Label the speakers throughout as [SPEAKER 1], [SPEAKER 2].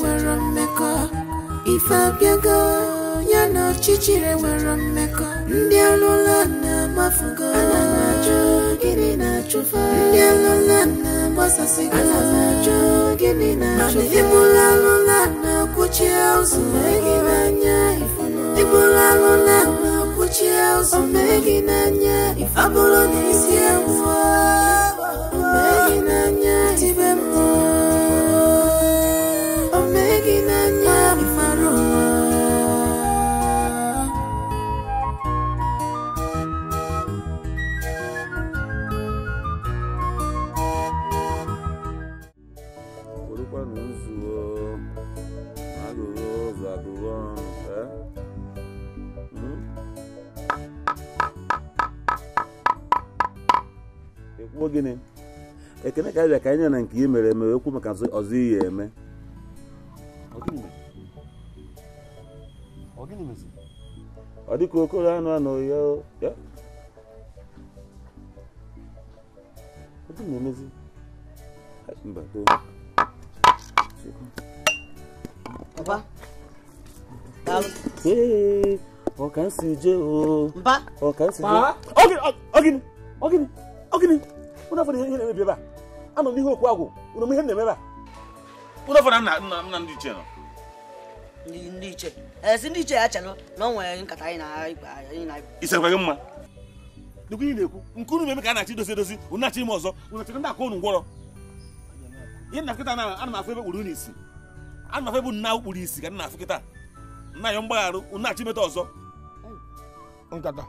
[SPEAKER 1] nwere mmekọ ife abịago ya na ọchịchịrị nwere mmekọ ndị alụla na-amafugo gịnị na-achụfe ndị alụla na-agbasasịgo gịnị na-achụfe ịbụla alụla na-akwụchi ụzọ gị n'anya ịbụla alụla na-akwụchi ụzọ gị n'anya ọ bụrụ na isi ewu n'anya tibe
[SPEAKER 2] akwụkwọ gịnị ekene ka abịa ka anyị na nke ihe mere eme ekwu maka ọzọ ihe eme ọ dịka okoro anụ anụ ya na-emezi mba Mba. Ee, ọka nsi jee oo. Mba. Ọka nsi jee.
[SPEAKER 3] Ọgịnị, ọgịnị, ọgịnị, ụnụ afọ ihe
[SPEAKER 2] na-emebi ebe a anọ n'ihu okwu agwụ ụnụ ihe na-eme ebe a ụnụ afọ nna nna ndị iche nọ ndị iche
[SPEAKER 4] esi eh, ndị iche ya chelụ na ọ nwere nkata anyị na anyị na
[SPEAKER 2] isekwa gị mma dịkwa ihe na-ekwu nke unu meme ka a na-achị dozi edozi ụnụ na-achị ime ọzọ ụnụ chịrị ndị aka ụnụ ngwọrọ ihe na kịta na ana m afọ ebe kpụrụ unu isi ana m afọ ebe nna na-ahụ isi ka nna afụ kịta nna ya mgbagharụ ụnụ na-achị imeta ọzọ
[SPEAKER 3] nkata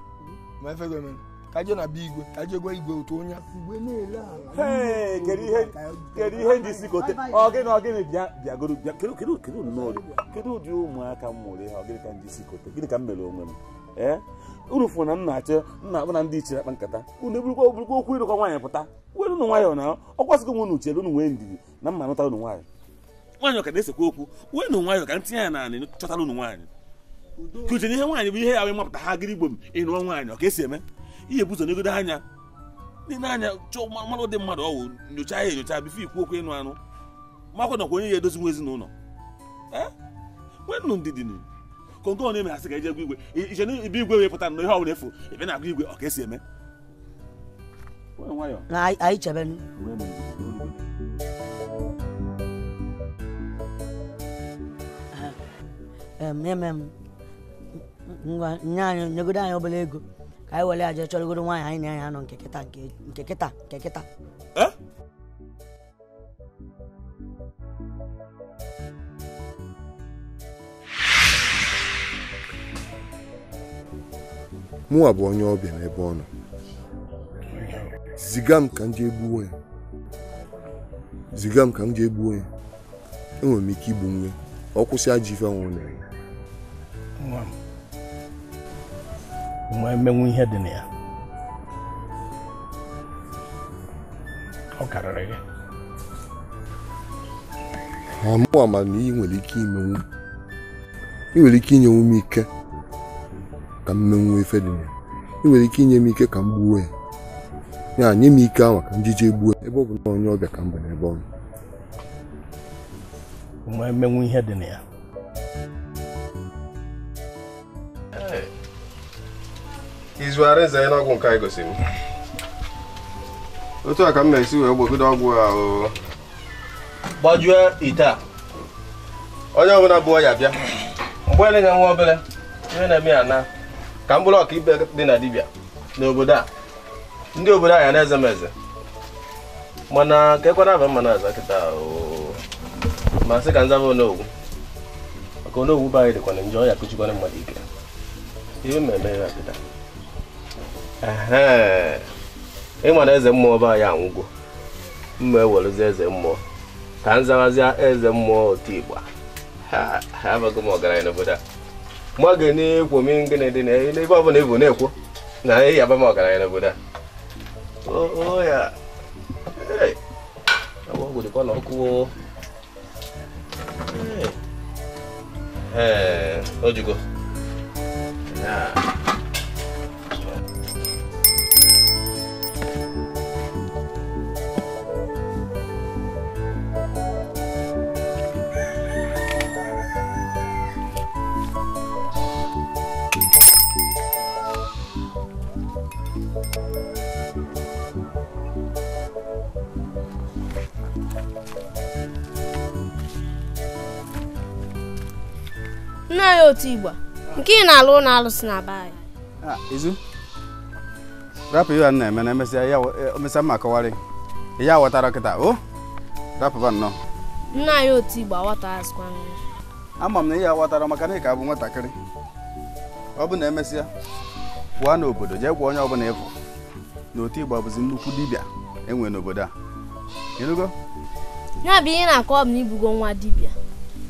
[SPEAKER 3] ma efe gị emere ka na bụ igwe ka igwe otu onye kedu ihe ndị isi kote ọgịnị
[SPEAKER 2] ọgịnị bịagoro bịa kedu kedu ụdị ụmụaka m mụrụ ihe ọgịnị ka ndị isi kote gịnị ka m mere onwe m ee eh? na m na nna akpụ na ndị iche akpa nkata unu eburukwa oburukwa okwu ịrụkwa nwaanyị pụta were ụnụ nwayọọ na ọ kwasịgo nwe nwee ndidi na mma nụtara unu nwaanyị nwaanyị ka na-esekwa okwu wee nụ ka ya chọtara nwaanyị ihe nwaanyị bụ ihe ya wee mapụta ha gịrị igbo m nwaanyị ọ ka esi eme ihe bụ ụzọ negodo anya nile anya chọọ mmanụ dị mmadụ ọwụ nyochaa ya enyocha bifo ikwu okwu ịnụ anụ makwa nakwa onye ya edozi nwa ezinụlọ nwee nwennụ ndidi konko na ọnụ asị ka eje e gwa igwe iche na ibe igwe wee pụta na ihe ọbụla efu ebe na-agụ igwe ọ ka esi eme
[SPEAKER 4] anyị chebenu nye anyị nyegodo anyị obere ego ka anyị were nwanyị chọrọgoro nwaanyị anyị na ya nọ nke kịta nke kịta nke eh? kịta
[SPEAKER 5] mụnwa bụ onye ọbịa n'ebe ọ nọ ziga m ka m jee gbuo ziga m ka m jee enwere m ike igbu nwe ọ kwụsị ajọ ife nwụrụ ya ma emenwu ihe dị na ya ọ karịrị gị amụ ama na ị nwere ike imenwu ị nwere ike inyenwu m ike ka m menwu ife dị na ya ị nwere ike inye m ike ka m gbuo ya ya nye m ike ahụ ka njije jije gbuo ebe ọ bụ na onye ọbịa ka m bụ n'ebe ọ ma emenwu
[SPEAKER 6] ihe dị na ya izu arịza ya n'ọgwụ nke anyị gosiri otu a ka m na-esi wee gbogide ọgwụ a o gbajue ite a onye ọbụla bụ ọya bịa mgbe ele ga nwa obere ihe na-eme ya na ka m bụrụ ọka ibe dị na dibịa n'obodo a ndị obodo a ya na-eze m eze mana ka ekwana aba mma na aza kịta ma sị ka nzaba onogwu maka onogwu be anyị dịkwana njọ ya kụchikwana mmadụ ike ihe mmemme ya kịta ịma na eze mmụọ be anyị anwụgo mma ewerezi eze mmụọ ka m zawazịa eze mmụọ otigba ha abago m ọgaranya n'obodo a Mụ ga na-ekwo m ngịnị na n'ebe ọ bụla ebu na-ekwo na ị yaba m ọgaranya n'obodo a ya ọgwụ dịkwa n'ọkụ ee ojugo
[SPEAKER 4] otu igba nke ị na-alụ ụlọ alụsị na be anyị
[SPEAKER 6] izu rapụ ihe a na-eme na emesịa e, mma kọwarị ya ghọtara kịta o rapụba nnọọ
[SPEAKER 4] nna anyị otu igbo aghọta azụkwa nri
[SPEAKER 6] ama m na ihe aghọtara maka na ị ka bụ nwatakịrị ọ bụ na emesịa pụọ n'obodo jee gwa onye ọbụla ịfụ na otu igba bụzi nnukwu dibịa enwe n'obodo a ịrụgo
[SPEAKER 4] ya bụ ihe na-akọ ọ bụ na ibugo nwa dibịa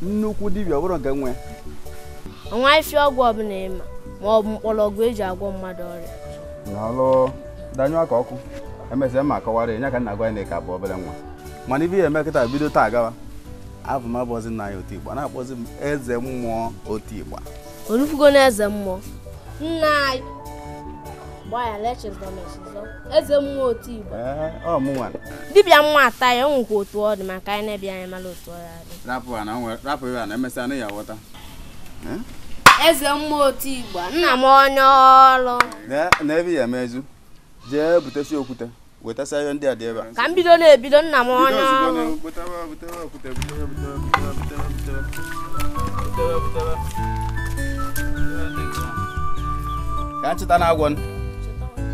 [SPEAKER 6] nnukwu dibịa ọ bụrụ nke nwe
[SPEAKER 4] ọnwa ọnwaghịfi ọgwụ ọbụla ịma ma ọ bụ mgbọrọgwụ eji agwọ mmadụ ọrịa
[SPEAKER 6] n'ọlụ danyụ aka ọkụ emesịa ma kọwara ya ka nna gwa ya na ịka bụ obere nwa mana ibe ya eme kịta bido taa gawa abụ m abụọzi nna ya otigba na-akpọzi m eze mmụọ otigba
[SPEAKER 4] orufugo na eze mmụọ nna anyị eze mmụọ otigba dibịa mmụọ ata ya ọ nwekwa otu ọ dị maka anyị na-ebi anya mara otu ọ ya
[SPEAKER 6] dị rapụ ya na emesịa na ya ghọta
[SPEAKER 4] eze otu igba nna m onye ọrụ
[SPEAKER 6] n'ebe ya mezu jee butesi okwute wetasa ihe ndị a dị ebe a ka
[SPEAKER 4] m bido na-ebido nna m onye ọrụ
[SPEAKER 6] ka ncheta na agwọ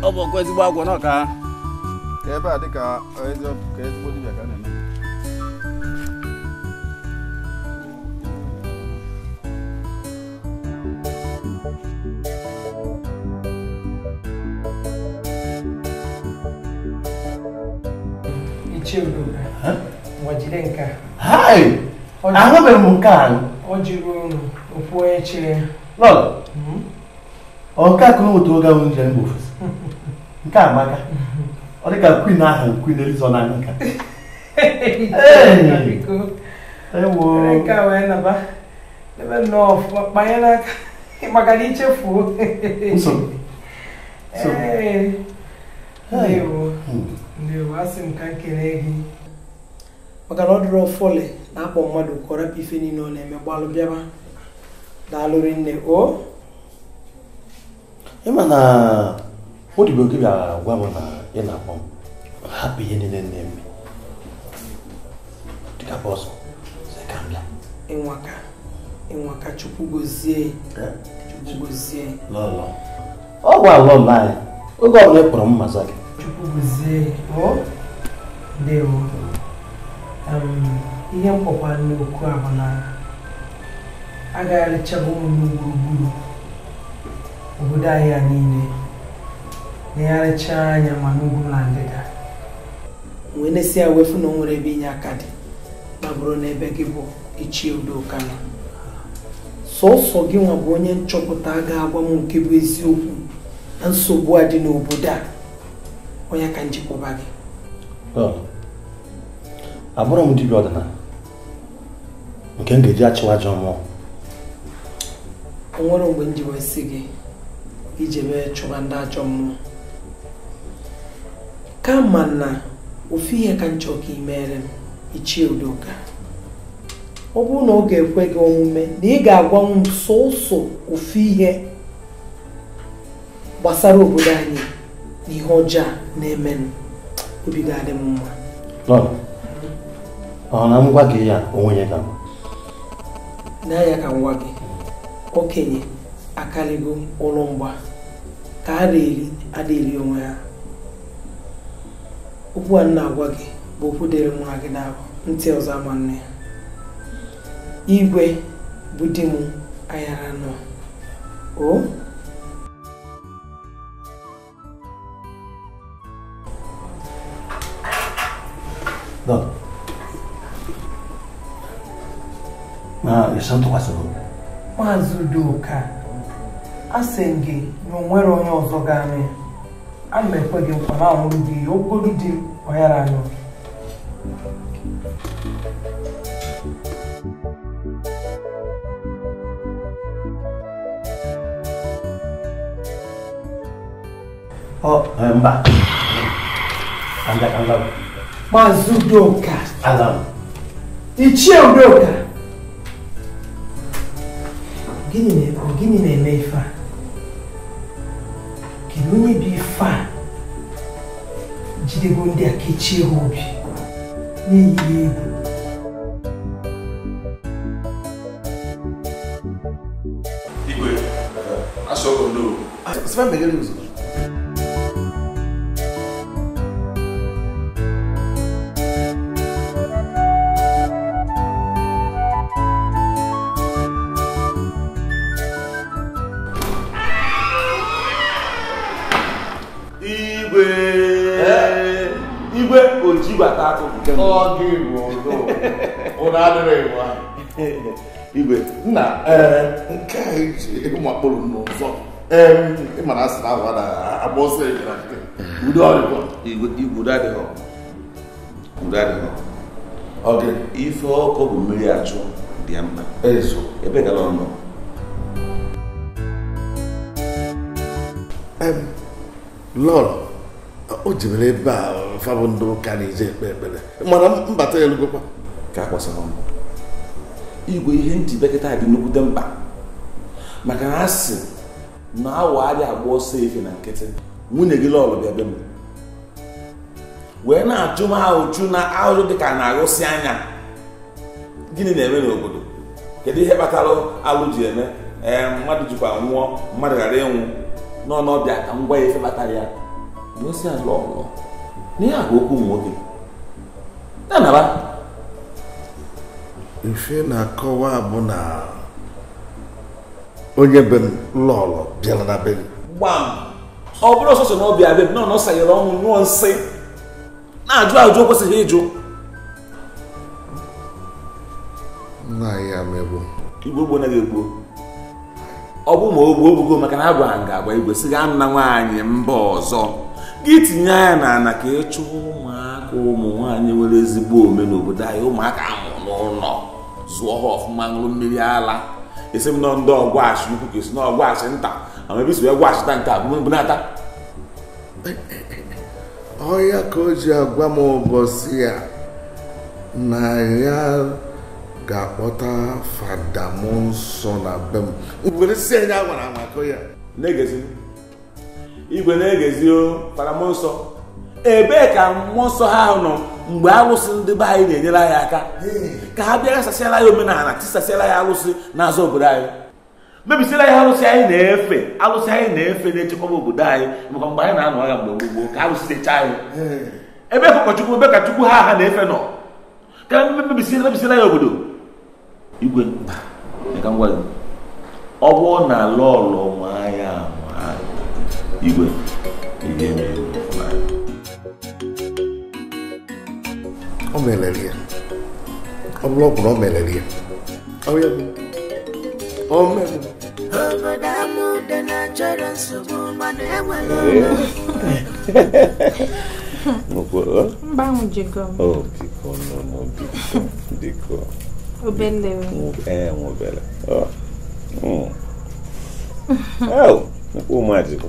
[SPEAKER 6] ọ bụ ezigbo agwọ n'ọka ka ebe a dịka ezigbo dibịa ka a na-eme
[SPEAKER 7] jide nke a ahụbeghị m nke a hmm? ọ jiri okwu onye chere
[SPEAKER 8] lọl ọka ka otu oge ahụ njem nke a amaka ọ dị ka kwin ahụ kwin elizo na
[SPEAKER 1] nka
[SPEAKER 7] ebe nnọọ ọfụma kpanye n'aka maka na nsogbu hmm. ndewo asị m ka gị maka na ọ dịrị ụfụlị na-akpọ mmadụ ka ọ ife niile ọ na-eme gbalụ bịaba daalụrị nne o
[SPEAKER 8] ịma na odibo gị bịara gwa m na ị na-akpọ m hapụ ihe niile na-eme dịka bọsụ
[SPEAKER 9] ịnwaka
[SPEAKER 7] ịnwaka chukwu gozie eh? chukwu gozie ọ
[SPEAKER 8] gwa lọlọ oge ọbụla ị kpọrọ m mmaza gị
[SPEAKER 7] chukwu gozie ndewo ihe mkpọkwa n'okwu a bụ na agagharịchago ụmụ gburugburu obodo anyị a niile na anya ma n'ugwu na ndịda
[SPEAKER 1] nwee na-esi ya wefu na o nwere ebe inye aka dị ma bụrụ na ebe gị bụ ichie udoka
[SPEAKER 8] nọ
[SPEAKER 7] sọsọ gị nwa bụ onye nchọpụta ga-agwa m nke bụ eziokwu na nsogbu a dị n'obodo a onye ka njikwaba gị
[SPEAKER 8] abụrụ m dibịa ọdịnala nke m ga-eji achịwa ajọ mmụọ
[SPEAKER 7] nwere mgbe ndị wasịghị gị iji mee chụwa ndị ajọ mmụọ kama na ofu ihe ka nchọ ka imere m ichie udoka ọ bụrụ na ọ ga-ekwe gị omume na ị ga-agwa m sọsọ ofu ihe gbasara obodo anyị na ihe ọjọọ na-emenụ obi ga-adị m mma
[SPEAKER 8] ọ na gwa gị ya onwe ya ga m.
[SPEAKER 7] na ya ka ngwa gị okenye akarịgo ụlọ mgba ka a na-eri onwe ha okwu a na-agwa gị bụ okwu dịrị nwa gị na ntị ọzọ ama nne ya igwe bụ di m ayara nọ o
[SPEAKER 2] na
[SPEAKER 8] ịsa ntụkwasịrị obi
[SPEAKER 7] maazị udoka a sị gị na onwere onye ọzọ ga ya, a na ekwe gị nkwa na anwụrụ ya okporo di ọyara anyụ
[SPEAKER 8] e, maazị udoka ichie udoka
[SPEAKER 7] gịnị na-eme ife a kedu onye bụ ife a jidego ndị a kechie ha obi
[SPEAKER 1] na
[SPEAKER 5] egwu igwe asọgọ n'owu igwe nna eh, nke a e, ụmụ akpụrụ n'ụzọ ịmara asị na ahụ adaghị agba ọsọ ejira udo ọrịkwa igwe adịghị
[SPEAKER 2] udo ife ọkụ bụ mmiri achụ dị mma
[SPEAKER 5] ezo ebe gara ọ nọ lọrọ o jibere ebe a fabụ ndị ụka na-eje ekpe ekpere mana
[SPEAKER 8] mbata ya elugokwa
[SPEAKER 5] ka a kwasara ọnụ
[SPEAKER 8] igwe ihe
[SPEAKER 2] njidekịta dị nnukwute mkpa maka na asị na awa adịghị agba ọsọ efe na nkịtị nwunye gị lọlụ bịa be m wee na-ajụ m ahụju na ahụjụ dị ka na-agụsị anya gịnị na-eme n'obodo kedu ihe kpatara alụ ji eme ee mmadụ jikwa nwụọ mmadụ ghara ịnwụ n'ọnọbịa ka m gwa ya ife kpatara ya bụ osi alụ ọlụ n'ihe a okwu ụmụ nwoke
[SPEAKER 5] ya naba ife na-akọwa bụ na onye be m lọlọ bịara na be m
[SPEAKER 2] gbam ọ bụrụ ọsọsọ na ọ bịa be m nọ nọsanyere ọnwụ ṅụọ nsị na-ajụ ajụ o kwesịghị ịjụ
[SPEAKER 5] nna ya megbu
[SPEAKER 2] igbo gbo naghị egbuo ọ bụ ma o ogbugo maka na agwa nga agba igwe si gaa nna nwaanyị mba ọzọ gị tinye anya na ana ka ịchụ ụmụaka ụmụ nwaanyị nwere ezigbo ome n'obodo anyị ụmụaka amụ n'ụlọ E e, e, zụọ ha ọfụma ṅụrụ mmiri ala esi m nọ ndị ọgwụachi ukwu ka esi na ọgwụachi nta ama ebe si gwachita nke
[SPEAKER 5] abụbunata ọya ka o ji agwa m ụbọchị ya na ya ga-akpọta fada m nsọ na be m were si anya gwara maka ya na-egezi
[SPEAKER 2] igwe na-egezi o fada m nsọ
[SPEAKER 5] ebee ka mmụọ nsọ ha nọ
[SPEAKER 2] mgbe arụsị ndị be anyị na-enyere anyị aka ka ha bịa gasasịala ya omenala tisasịala ya arụsị n'azụ obodo anyị mebisiela ya arụsị anyị na-efe arụsị anyị na-efe na-echekwaba obodo anyị maka mgbe anyị na-anọ agha mgbe gbogbo ka arụsị dịcha anyị ebe ka ebe ka ha ha na-efe nọ ka mebisiela ya obodo igwe ọ bụrụ na lọlọ nwa ya
[SPEAKER 5] igwe ga-eme. ọmọlẹlẹlẹ ọmọlọkùnrin ọmọlẹlẹ ọyẹ mi
[SPEAKER 4] ọmọ mi. obodo amụ dị na chọrọ nsogbu mana
[SPEAKER 1] ọ
[SPEAKER 2] ụmụ ajikọ.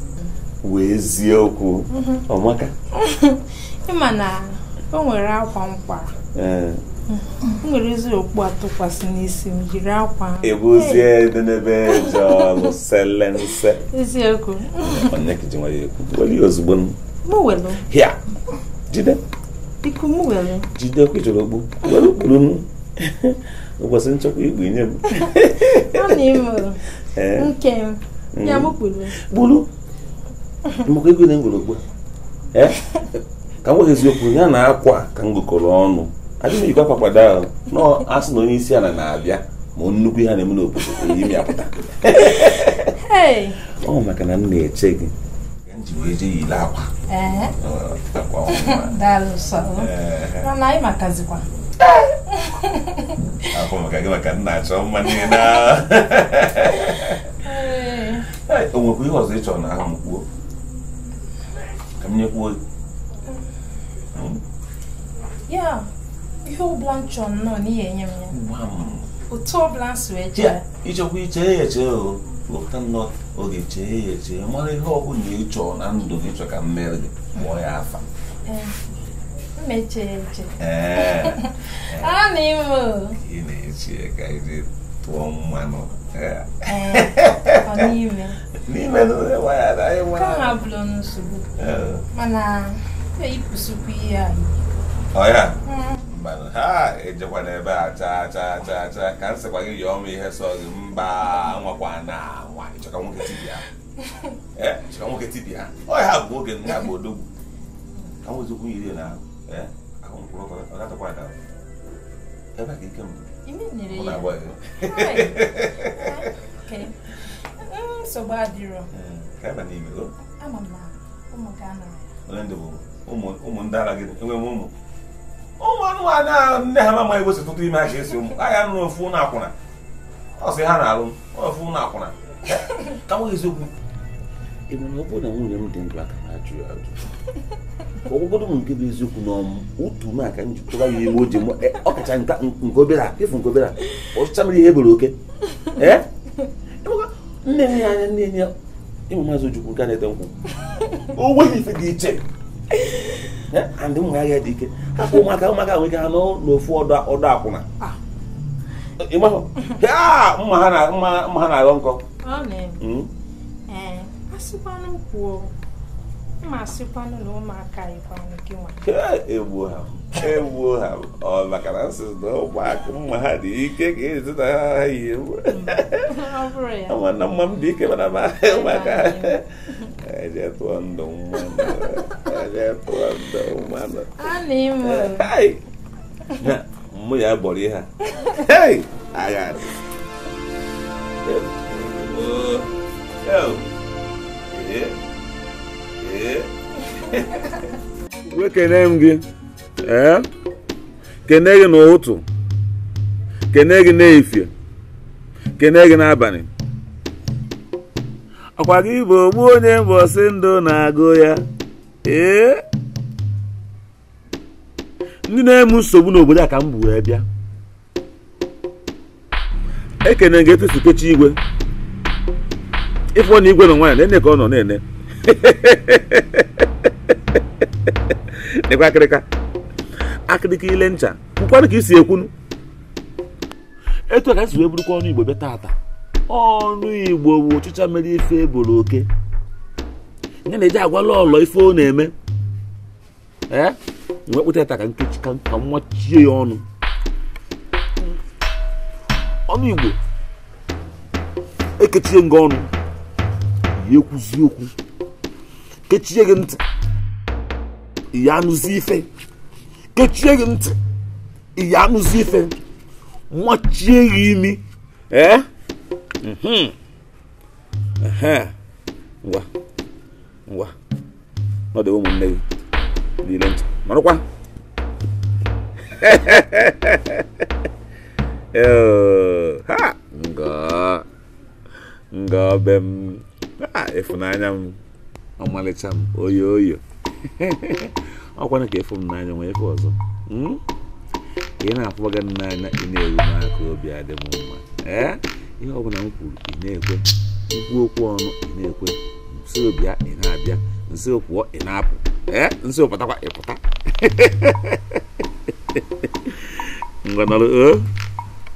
[SPEAKER 2] wee eziokwu. okwu mhm. ọmaka
[SPEAKER 4] ịma na o nwere akwa mkwara
[SPEAKER 9] o nwere ezi atụkwasị n'isi m jiri akwa ebuzie
[SPEAKER 2] dị n'ebe jọlụ sele nse eziokwu onye ka ji nwere ekwu weli ozugbo m welu hịa jide
[SPEAKER 9] iku m welu
[SPEAKER 2] jide kwụjụrụ okpu
[SPEAKER 9] welu
[SPEAKER 4] kpuru
[SPEAKER 2] m ụbọchị nchekwa igbu nye m ọ
[SPEAKER 4] na-ime
[SPEAKER 2] nke ya m kpuru kpuru maka ego na ngorokpo ka m gwa eziokwu ya na akwa ka m gokọrọ ọnụ adịghị ejikwa akwa kwado ahụ nọ asị na onye isi ala na-abịa ma nnukwu ihe na-eme n'obodo onye imi apụta ọ maka na m na-eche gị nwekwa ihe ọzọ na m kwuo ka m nyekwa ozi
[SPEAKER 9] ya ihe ọbụla
[SPEAKER 4] m nnọọ n'ihi enye m ya otu ọbụla m
[SPEAKER 2] ịchọkwa ichee ya eche o nnọọ oge chee ya eche ihe ọbụla ị chọrọ na ndụ chọ ka mmeri mere gị mụọ ya
[SPEAKER 4] eche ee a na
[SPEAKER 2] eche ka iji n'ime ha bụrụ
[SPEAKER 4] mana ihe a
[SPEAKER 2] mana ha ejekwa n'ebe a chaa chaa chaa chaa ka m sịkwa gị yọọ m ihe sọ gị mba nwakwa na nwa ịchọka nwoke tibia ịchọka nwoke tibia ọya ha bụ nwoke ndị bụ odogwu ka yiri na ahụ mkpụrụ ọ gatakwa ada ebe ka ike mbụ
[SPEAKER 9] nyere ya nsogbu mm, adịrọ mm, ama na ụmụ gị
[SPEAKER 2] anọrọ ụmụ ndị ara gị enwe m ụmụ ụmụ anụmanụ a nne ha amaghị ewesi tụtụ ime ha ji esi ụmụ agha nụrụ ofu na akwụna ọ sị ha na-alụ ofu na akwụna ka nweghị eziokwu ebe na ọ bụrụ na nwunye m dị ndụ ka na ajụ ya ajụ ọgwụgwọdụ m nke bụ eziokwu na otu m aka m jikọba ya iwe oji e, ọkacha nke obere a efu nke obere a ọchịcha mere ihe ebere oke e? E nne ya anya nne ya ịmụ maazị ojukwu nke na-ete nkwụ o nweghị ife dị iche andị ụmụ agha dị ike hapụ ụmụaka ụmụaka nwere ike ha n'ofu ọdọ akwụna ah. ịmahụ mma ha na-aghọ nkọ
[SPEAKER 4] asịkwanụ kwuo ma asịkwanụ na ụmụaka ịkwanụ gị nwa
[SPEAKER 2] egbuo ha egbuo ha ọ maka na nsị na ụmụaka mma ha dị ike ka ezi na ha yi ewu
[SPEAKER 1] é
[SPEAKER 2] mma m dị ike mana ma ụmụaka eje tụọ ndụ mmanụ mụ ya bọrọ ihe a agha Oh. wekene m gị ee kene gị n'ụtụ kene gị n'efie kene gị n'abalị ọkwa gị bụ ogbu onye mbọsị ndụ na-agụ ya ee ndị na-eme nsogbu n'obodo a ka m bụ wee bịa ekene gị etusukechi igwe ịfụ na igwe na nwa ya na-ene ka ọ nọ na-ene nekwa akịrịka akịrịka ile ncha kwukwanụ ka isi ekwunu etu a ka esi wee bụrụkwa ọnụ igbo be taata ọnụ igbo bụ ụchịcha mere ife eboro oke nye na eji agwala ọlọ ife ọ na-eme ee wee kpụta ta ka nkechi ka nwachie ya ọnụ ọnụ igbo ekechie nga ọnụ ekwuzi okwu kechie gị ntị ya anụzi ife kechie gị ntị ya anụzi ife machie gị imi ee mhm. ngwa ngwa ọ dị ụmụnne gị niile ntị marakwa ha nga nga be m ah ịfụnanya m ọmalịcha m oyo oyo ọkwana ka efu m n'anya nwee ife ọzọ hmm? ị na-afụbaga n'anya ị na-eru n'aka obi adị m mma ee ihe ọbụla m kwuru ị na-ekwe mkpu okwu ọnụ ị na-ekwe nsi obịa ị na-abịa nsi pụọ ị na-apụ ee nsi pụtakwa ị pụta ngọnọrọ o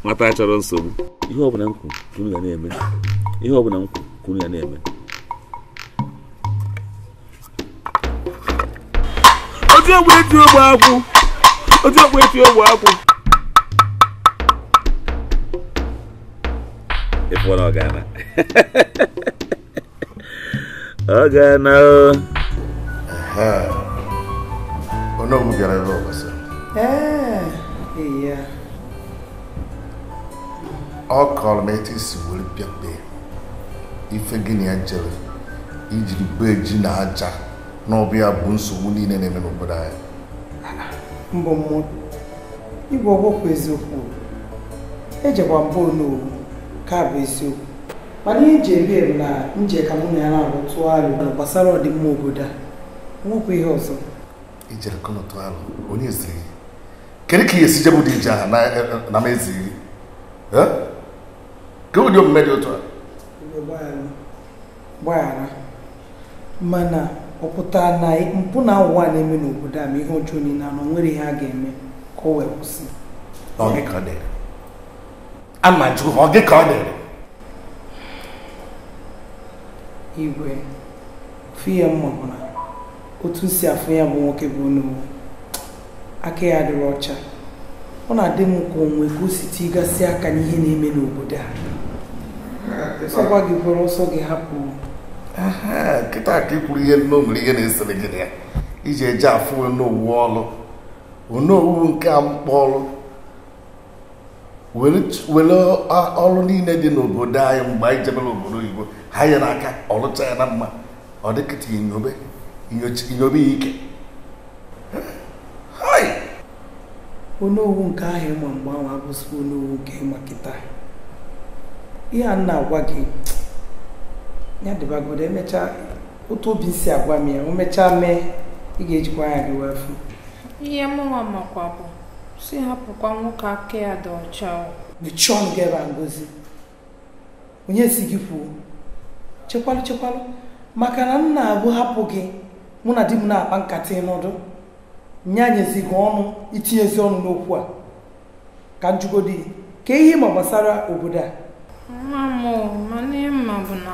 [SPEAKER 2] nwata chọrọ nsogbu ihe ọbụla m kwuru kunu ya na-eme ihe ọbụla m kwuru kunu ya na-eme otu egwu eti ogbe akwụ otu egwu eti ogbe akwụ ịfụrụ ọgana
[SPEAKER 5] ọgana o onye ọmụ gara ebe ọbasa ọ kọrọ m etu isi were pịakpe ife gịnị ya jere ijiri bee ji na aja na ọ bụ nsogbu niile na-eme n'obodo anyị
[SPEAKER 8] mbọ mmadụ igwe ọgbọkwụ
[SPEAKER 7] eziokwu ejekwa mbụ n'owu ka bụ eziokwu mana iji ebe m na nje ka mụ na ya na-arụ tụọ alụ gbasara ọdịmma obodo a nwekwa
[SPEAKER 5] ihe ọzọ ijere ka ọtụ alụ onye ziri kedu ka ihe si bụ dị ije ahụ e, e, na m eziri ka ụdị omume dị otu a
[SPEAKER 7] gbaghara mana ọ pụtara na mpụ na ụwa na-eme n'obodo a ma ihe ọjọọ niile na nwere ihe a ga-eme ka ọ wee kwụsị
[SPEAKER 5] ama jụ ọ gị ka ọ
[SPEAKER 7] igwe fiya mma
[SPEAKER 5] bụ na otu
[SPEAKER 7] si afụ ya bụ nwoke bụ n'uwe aka ya adịrị ọcha ọ na-adị m ka onwe ka o site ịgasị aka n'ihe na-eme n'obodo a ọgwa gị kwere ọsọ gị hapụ
[SPEAKER 5] nkịta ka ikwuru ihe nno nwere ihe na-esere gị na ya iji eji afụ onowu ọlụ onowu nke a mkpọrụ were ọrụ niile dị n'obodo anyị mgbe anyị jebere obodo oyibo ha ya n'aka ọlụcha ya na mma ọ dịkịta inyobe ya ike
[SPEAKER 7] onowu nke ahụ ịma mgbe ahụ abụzikwa onowu nke ịma kịta ihe a na-agwa gị ya dịbagodo emechaa otu obi si agwa m ya o mechaa mee ị ga-ejikwa anya gị wee fụ
[SPEAKER 4] ihe mụnwa makwa bụ si hapụkwa nwoke aka ya dị ọcha
[SPEAKER 7] mechie ọnụ gị ebe ngozi onye si gị kwuo chekwalụ chekwalụ maka na nna abụ hapụ gị mụ na di m na-akpa nkata ịnọdụ nye anyezi gị ọnụ itinyezi ọnụ n'okwu a ka njugodi ka ihe ma gbasara obodo a
[SPEAKER 4] ma m ma ihe
[SPEAKER 9] mma bụ na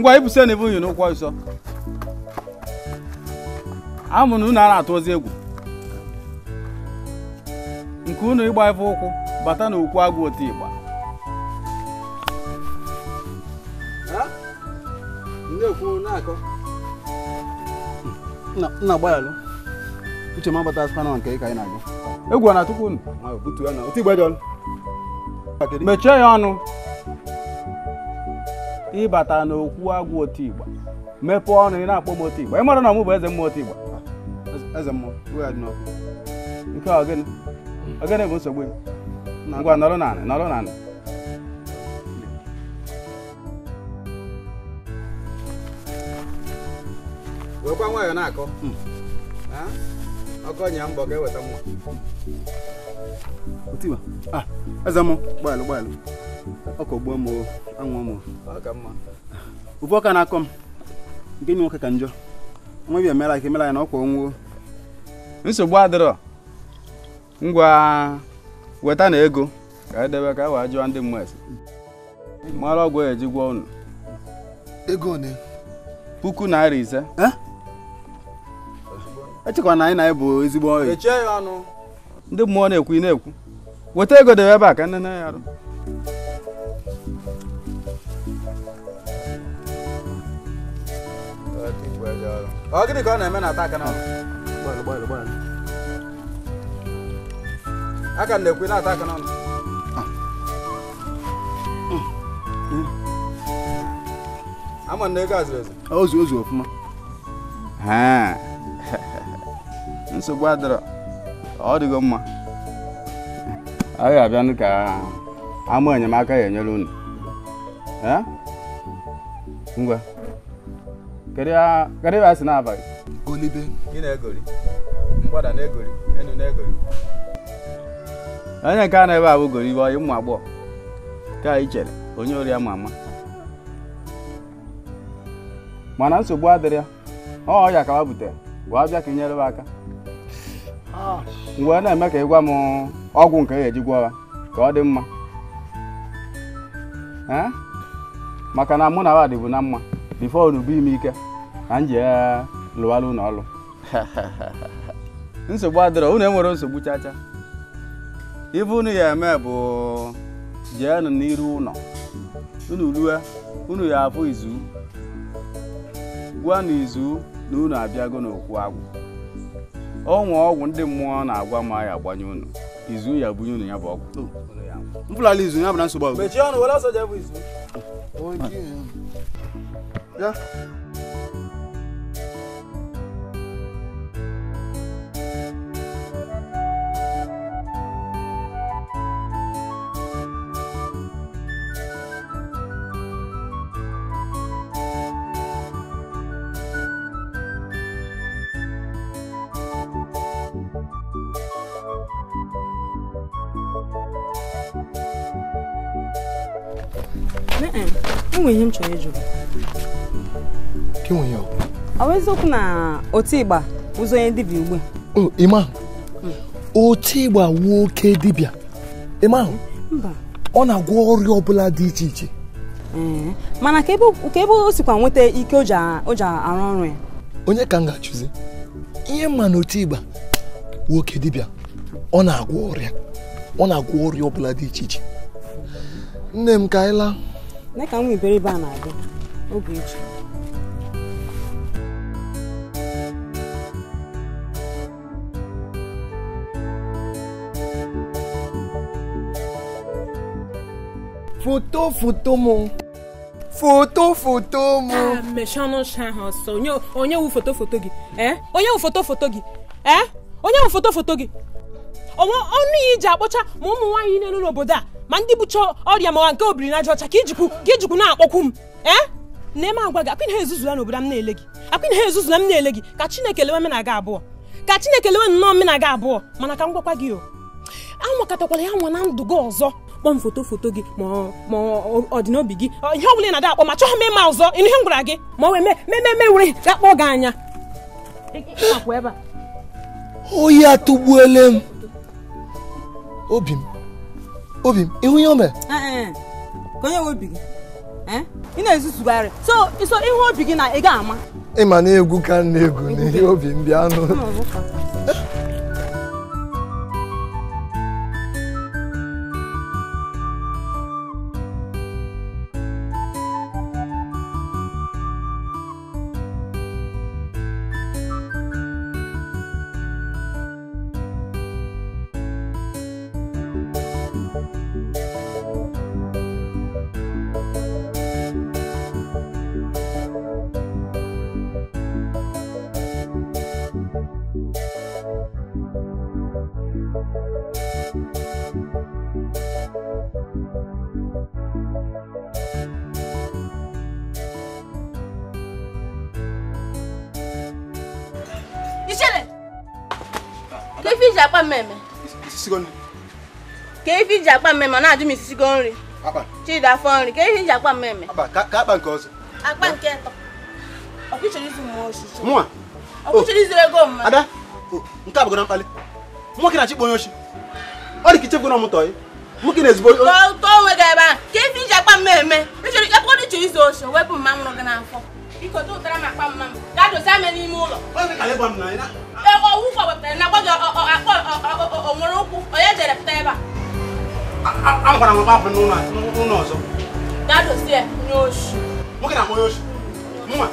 [SPEAKER 6] ngwa ibuso na ebe unyi n'ụkwụ ọzọ amụ na unu a na-atụ ozi egwu nke unu ịgba ebe ụkwụ bata na okwu agwụ otu ịgba uche m abata spana nke ka anyị na-aga egwu na tupu unu mechie ya ọnụ ịbata n'okwu agwụ otu igba mepee ọnụ ị na-akpọ m otu igba ị mara na ọmụ bụ eze mmụọ otu igba eze mmụọ nke ogene bụ nsogbu ngwa nọrọ nọrọ na-akọ hmm. ọkọ nya mbọ ga-eweta ọkọgbuo m anwụọ m ube ọka na-akọ m nke nwoke ka njọ nwa bịa mera ka emera ya na ọkwa onwuo nsogbu adịrọ ngwa weta na ego ka edebe ka a e wee jụọ ndị mmụọ esi mara ọgwụ eji gwọ unu ego ole puku naira ise echekwa na anyị na anyị bụ ezigbo ọyị ndị mmụọ na-ekwu ị na-ekwu weta ego debe ebe a ka nne na ya arụ ọ gịnị ka ọ na-eme na ata aka n'ọnụ aka m na-ekwe na-ata aka n'ọnụ ah. hmm. ama na ego azụrụ ezu ozu ozu nsogbu ọ dịgo mma a ga-abịanụ ka ama enyemaka ya enyere unu ngwa kedu ebe a sị na gị onye nke a na-ebe abụ gori ibe ụmụ agbọghọ ka anyị chere onye ori ama ama mana nsogbu adịrị ya ọ ọya ka wa butere wee bịa ka nyere m aka mgbe na-eme ka ị gwa m ọgwụ nke e ji gwọ ya ka ọ dị mma maka na mụ na wa dịbụ na mma bifo bụ ime ike na m ji ya lụwara ụlọ ọrụ nsogbu adịrọ unu enwere nsogbu chacha ife unu ya eme bụ jeenụ n'iru ụlọ unu rue unu ya afụ izu gwa na izu na unu abịago n'okwu agwụ ọnwa ọgwụ ndị mmụọ na-agwa ma ya agbanye unu izu ya bunye unu ya bụ ọgwụ mfụlala izu ya bụ na nsogbu agwụ
[SPEAKER 9] nwe ihe m chọrọ ịjụ ọ bụ eziokwu na otigba ụzọ onye dibịa ugbu
[SPEAKER 8] a ịma otigba wuo oke dibia ịma ahụ ọ na-agwọ ọrịa ọbụla dị iche iche
[SPEAKER 9] mana ka ebe o sikwa nweta ike o ji arụ ọrụ ya
[SPEAKER 8] onye ka m ga-achụzi ihe mma na
[SPEAKER 9] wuo
[SPEAKER 8] oke dibia ọ na-agwọ ọrịa ọ na-agwọ ọrịa ọbụla dị iche iche nne m ka anyị
[SPEAKER 9] laa nne ka nwa iberibe a na-adị oge eji foto foto mụ foto foto mụ mechie ọnụ ọcha ahụ ọsọ onye wụ foto foto gị eh? onye wụ foto foto gị eh? onye wụ foto foto gị ọnụ ya iji akpọcha ma ụmụ nwaanyị niile n'obodo a ma ndị bụcha ọrịa mawa nke obirinaja ọcha ka ijikwu ka ijikwu na-akpọkwu m ee na eme agwa gị akwịna ha ezuzula n'obodo m na-ele gị akwịna ha ezuzula m na-ele gị ka chineke lewe menaga abụọ ka chineke lewe nnọọ menaga abụọ mana ka m gwakwa gị o anwakọtakwala ya nwa na ndụ gị ọzọ kpọm foto foto gị ma ọ dị n'obi gị ihe ọ bụla ị na-ada akpọ ma chọghị m ịma ọzọ ịnụ ihe m gwara gị ma ọ wee mememe were ga kpọọ gị anya
[SPEAKER 8] oyi atụgbuole m obi m obi m ihu ihe o mere
[SPEAKER 9] onye nwe obi gị eh? ị na-ezutugharị so iso ihu obi gị na ị ga-ama
[SPEAKER 5] ịma na egwu ka na egwu n'ihe obi m bịa anụ
[SPEAKER 9] ji akpa mmemme na-ajụ m isi isigo nri chidi afọ nri ka ihe ji akpa mmemme
[SPEAKER 8] akpa nke ọzọ
[SPEAKER 9] akpa nke atọ ọkụchọrọ
[SPEAKER 8] oh. izu ego mma ada oh, nke a bụgara mkpali nwoke na onye oshi ọ dị ka na-ezigbo tọọ
[SPEAKER 9] onwe gị ebe akpa mmemme ịchọrọ ike wepụ mma mụrụ gị n'afọ tụtara m akpa mma m dozie ame n'ime ụlọ wepụtara na
[SPEAKER 8] no amụkwara m gbapụ n'ụlọ ọzọ
[SPEAKER 9] nwoke na amonye oshi mma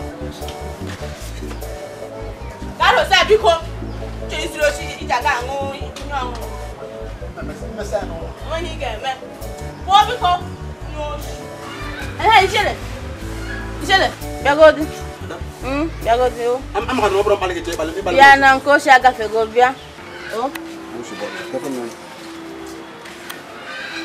[SPEAKER 9] gadosie biko chọrọsiri oshi iji aga aṅụ ihe ọṅụṅụ onye ị ga-eme pụọ biko nye oshi ehe ichere ichere bịagodi bịagodi
[SPEAKER 8] o ya na
[SPEAKER 9] nke oshi agafego bịa o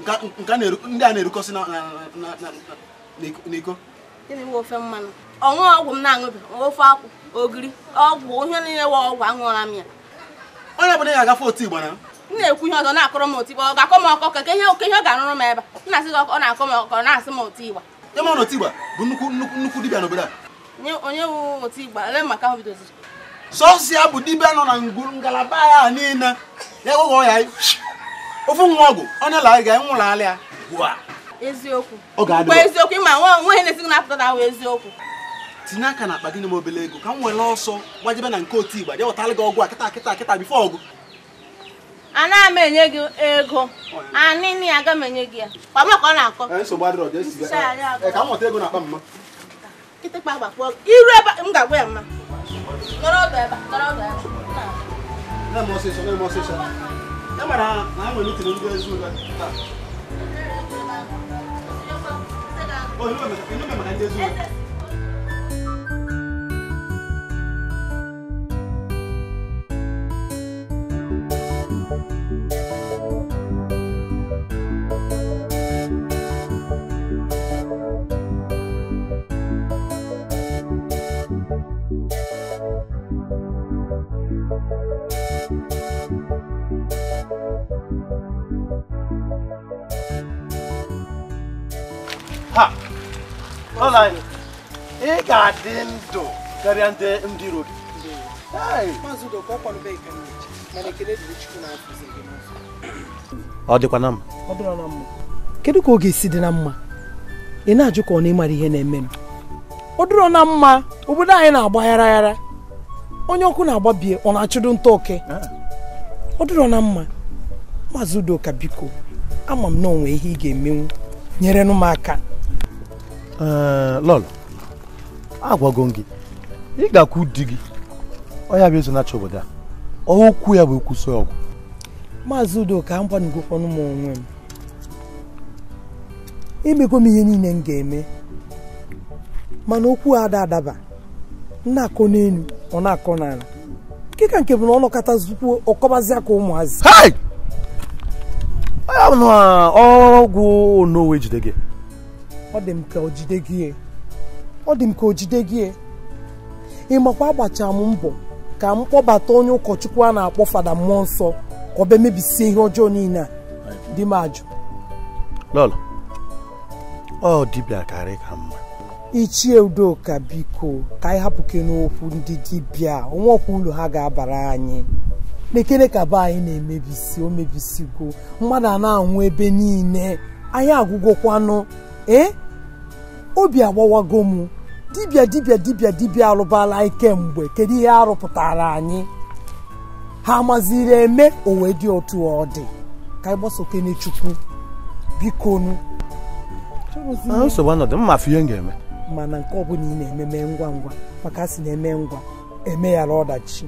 [SPEAKER 8] ndị a na-erukọsị n'iko
[SPEAKER 9] ọṅụghị ọgwụ m na-aṅụbi ofe akwụ ogiri ọgwụ ihe niile wa ọgwụ aṅụọla m ya onye ọbụla ya
[SPEAKER 8] agafe otu igba m
[SPEAKER 9] na-ekwu ihe ọzọ na-akọrọ m otu igba ọ ga-akọ m ọkọ ka ihe oke ihe ọ ga-arụrụ m ebe m na-asị gị ọ na-akọ m ọkọ na-asị m otu igba ịma
[SPEAKER 8] na otu igba bụ nnukwu nnukwu dibịa n'obodo a
[SPEAKER 9] onye wu otu igba ele maka ahụ bidoziri sọsịa bụ dibịa nọ na ngalaba ya niile ya ewegho ya
[SPEAKER 8] ofu nwa ọgwụ onye lara ga nwụrụ ala ya ugbu
[SPEAKER 9] eziokwu eziokwu ịma na-esighị na ahụ eziokwu
[SPEAKER 8] tinye aka na akpa gị obele ego ka m were ọsọ gbajebe na nke otu igba je gị ọgwụ a kịta kịta kịta bifo ọgụ
[SPEAKER 9] ana m enye gị ego anịnị aga m enye gị ya na-akọ
[SPEAKER 8] nsogbu adịrọ ka m nweta ego
[SPEAKER 9] m ga-agwa ya mma
[SPEAKER 8] e mara ha na ha nwere itiri ndị ezi ule taa onye
[SPEAKER 1] maka
[SPEAKER 8] anyị ị ga-adị ndụ karịa ndị ndị iro gị ọ
[SPEAKER 3] dịkwa na mma
[SPEAKER 7] kedu ka ọ ga-esi dị na mma ị na-ajụ ka ọ na-ịmara ihe na-eme m
[SPEAKER 3] ọ dịrọ na mma obodo anyị na-agba ghara
[SPEAKER 7] onye ọkụ na-agbabie ọ na-achụdo nta oke ọ dịrọ na mma maazị udoka biko ama m na onwe ihe ị ga-emenwu nyere m aka
[SPEAKER 8] Eh, lọl agwago gị ị ga-akwụ di gị ọya bụ ezonacha obodo a okwu ya bụ ekwuso ọgwụ maazị udoka m
[SPEAKER 7] gwanugokwanụ m onwe m imego m ihe niile m ga-eme mana okwu ada adaba na-akọ n'elu ọ na-akọ n'ala nkeka nke bụ na ọ nọkọtazikwuo ọkọbazi aka ụmụazị
[SPEAKER 8] ọgwụ onowe jide gị
[SPEAKER 7] ọ dị m ka o jide gị e. ọ dị m ka o jide gị e. ị makwa agbachara m mbọ ka m kpọbata onye ụkọchukwu a na-akpọ fada mmụọ nsọ ka ọ bịa mebisie ihe ọjọọ niile a
[SPEAKER 8] di m ajụ ọ dibịa karị ka mma
[SPEAKER 7] ichie udoka biko ka anyị hapụke n'okwu ndị dịbịa onwe ọkwa ụlọ ha ga-abara anyị n'ekere ka be anyị na-emebisi o mebisigo mmadụ a na-anwụ ebe niile anyị agwụgwọkwanụ ee eh? obi agbawago m dibia dibia dibia dibia alụbala ike mgbe kedu ihe arụpụtara anyị ha maziri eme owe dị otu ọ dị ka ịgbaso gbasokene chukwu bikonu nsogbu
[SPEAKER 8] anọdụ mma afọ ihe m ga-eme
[SPEAKER 7] mana nke ọbụla ị na-eme mee ngwa ngwa maka a na-eme ngwa emeghara ọdachi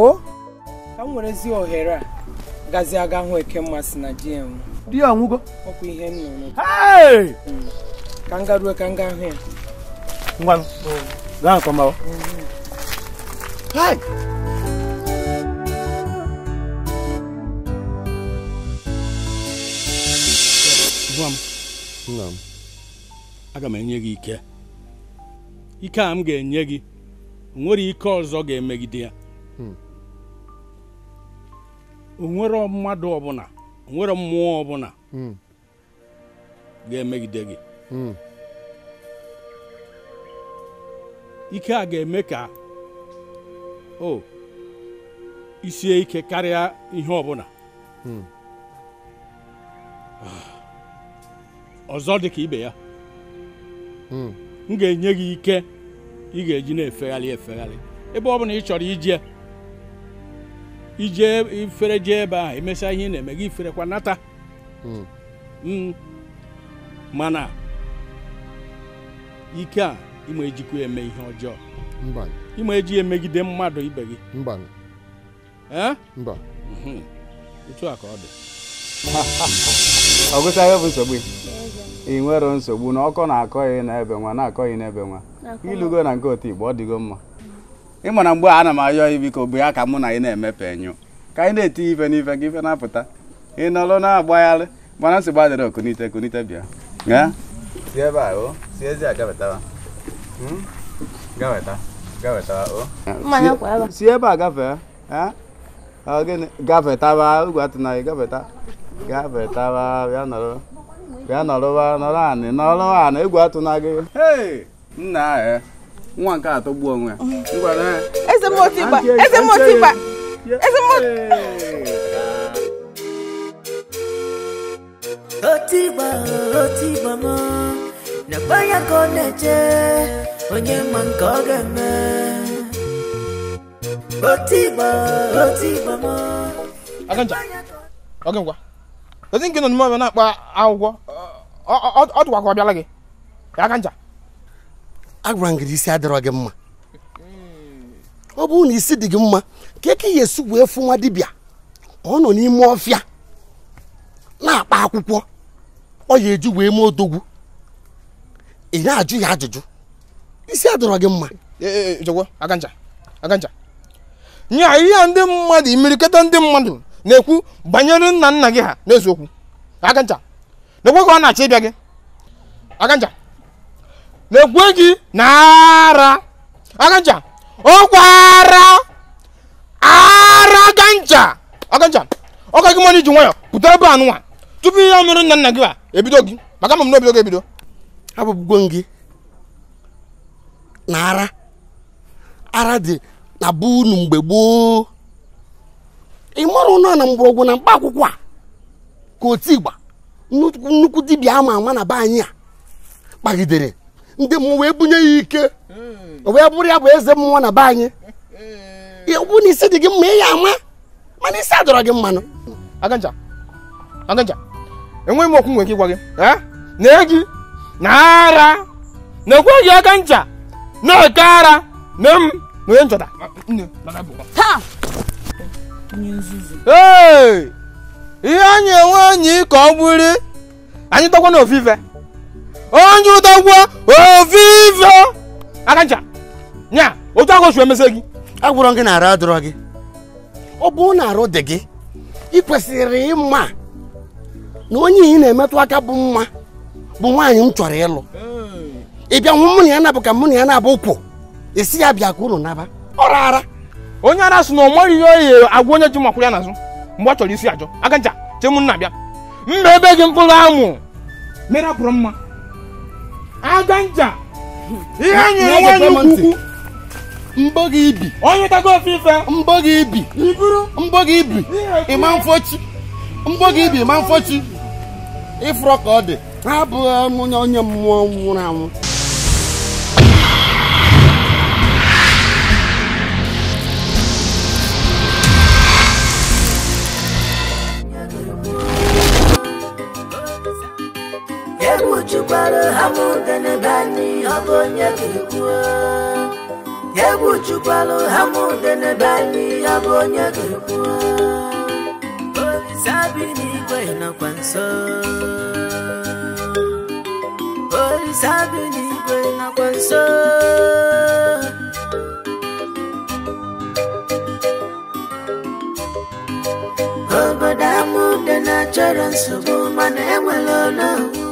[SPEAKER 7] o ka m nwere ezi ohere a aga hụ eke mmasị na GM di ya anwụgo ka nga ruo ka nga ahụ ya
[SPEAKER 8] ngwanụ gaa akọmawa
[SPEAKER 7] gwa
[SPEAKER 6] m nna m aga m enye gị ike ike a m ga-enye gị nwere ike ọzọ ga-emegide ya hmm. o nwere mmadụ ọbụla nwere mmụọ ọbụla hmm. ga-emegide gị hmm. ike a ga-eme ka o isie ike karịa ihe ọbụla hmm. ah. ọzọ dị ka ibe ya m ga-enye gị ike ị ga-eji na-efegharị efegharị
[SPEAKER 3] ebe ọ bụla ị chọrọ
[SPEAKER 6] ije ije ifere jee ebe ahụ emesịa ihe na-eme gị kwanata nata hmm. Hmm. mana ike a ịma ejikwa eme ihe ọjọọ ịma eji emegide mmadụ ibe gị hmm. otu a ka ọ dị bụ nsogbu ị nwere nsogbu na ọkọ na-akọghị n'ebe nwa na-akọghị n'ebe nwa ilugo na nke otu igbo ọ dịgo mma ị ma na mgbe a na m ayọ ya biko bụ ya ka mụ na ị na-emepe enyo ka anyị na-etinye ife n'ife ka ife na-apụta ị nọrọ na-agbagharị mana nsị gbadịrị okunite kunite bịa si ebe a o si ezi a gafetawa hmm? gafeta gafetawa
[SPEAKER 1] o
[SPEAKER 6] si ebe a gafee ọ gịnị gafetaba ugwu atụnaghị gafeta gafetawa bịa nọrọ bịa nọrọ nọrọ anị nọrọ anị egwu atụna gị nna ahụ eh. wọn ká àtọ́gbọ́ ọ̀hún ẹ̀.
[SPEAKER 1] ẹsẹ̀ mo ti bà ẹsẹ̀ mo ti bà ẹsẹ̀ mo. ó ti bà ó ti bà mọ́ onye ma nke ọ ga-eme ó ti bà ó
[SPEAKER 3] aganja oge ngwa ezi nke nọ n'ime ọbịa na-akpa akwụkwọ ọ dụkwakwa ọbịala gị aganja agwara
[SPEAKER 8] m gị isi adịrọ gị mma
[SPEAKER 3] ọ bụrụ na isi dị gị mma ka eke ya esi wee fụ nwa dibịa ọ nọ n'ime ọfịa na-akpa akwụkwọ ọ ya eju wee mee odogwu ị na-ajụ ya ajụjụ isi adọrọ gị mma nya ihe ndị mmadụ imirikọta ndị mmadụ na-ekwu banyere nna nna gị ha n'eziokwu aganja na ekwe ka ọ na-achọ ịbịa gị aganja lekwe gị n'ara aganja ọkwara ara ganja aganja ọka gị mmadụ iji nwayọ pụta ebe a tupu ihe mere nna nna gị a ebido gị maka ma m n'obido gị ebido abụbugo gị na ara ara dị na bụ mgbe gboo ị mara ụnọ na mgbọrọgwụ na mkpa akwụkwọ a ka otu igba nnukwu dibịa ama ama na be anyị a kpagidere ndị m wee bunye ya ike wee bụrụ ya bụ eze mmụọ na be anyị bụ hmm. na isi dị gị mma ị ama mana isi adọrọ gị mmanụ aganja aganja enweghị m okwu nwere ike ịgwa gị na egi na ara na-ekweghị aka ncha na-eke ara na m na onye nchọta ihe anyị enwe anyị ka ọ bụrụ anyị tọkwa na ofufe onye ụdọgwọ ovivio aka ncha nya otu ahụ su emese gị agwụrọ gị na arụ adọrọ gị ọ bụ na arụ dị gị ị kwesịrị ịma na onye ị na-emetụ aka bụ mma bụ nwaanyị m chọrọ ịlụ ị bịa nwụ mụnụ ya na ya nabụ ka mụ na ya nabụ ụkwụ esi ya bịa ka unu naba ọ rara onye ara sị na ọ maghị ihe oyi agwa onye ji makwụrụ ya n'azụ mgbe ọ chọrọ isi ajọ aka ncha chemụ nna bịa mma ebe gị mkpụrụ amụ mere apụrụ mma ada nja
[SPEAKER 1] ihe nyere nwaanyị ukwu
[SPEAKER 3] mbọ gị ibi onye tago ofufe mbọ gị ibi iburu mbọ gị ibi ịma mfọchi mbọ gị ibi ịma mfọchi ịfụrọ ka ọ dị abụghị onye mmụọ nwụrụ anwụ
[SPEAKER 1] chụkwara hamụdene bani ọ bụ onye ga-ekwu egwu chụkwara hamụdene bani ọ bụ onye ga-ekwu Olise bi n'igwe nakwa nso Olise bi n'igwe nakwa nso obodo amụdene chọrọ nsogbu mana enwere ọnụ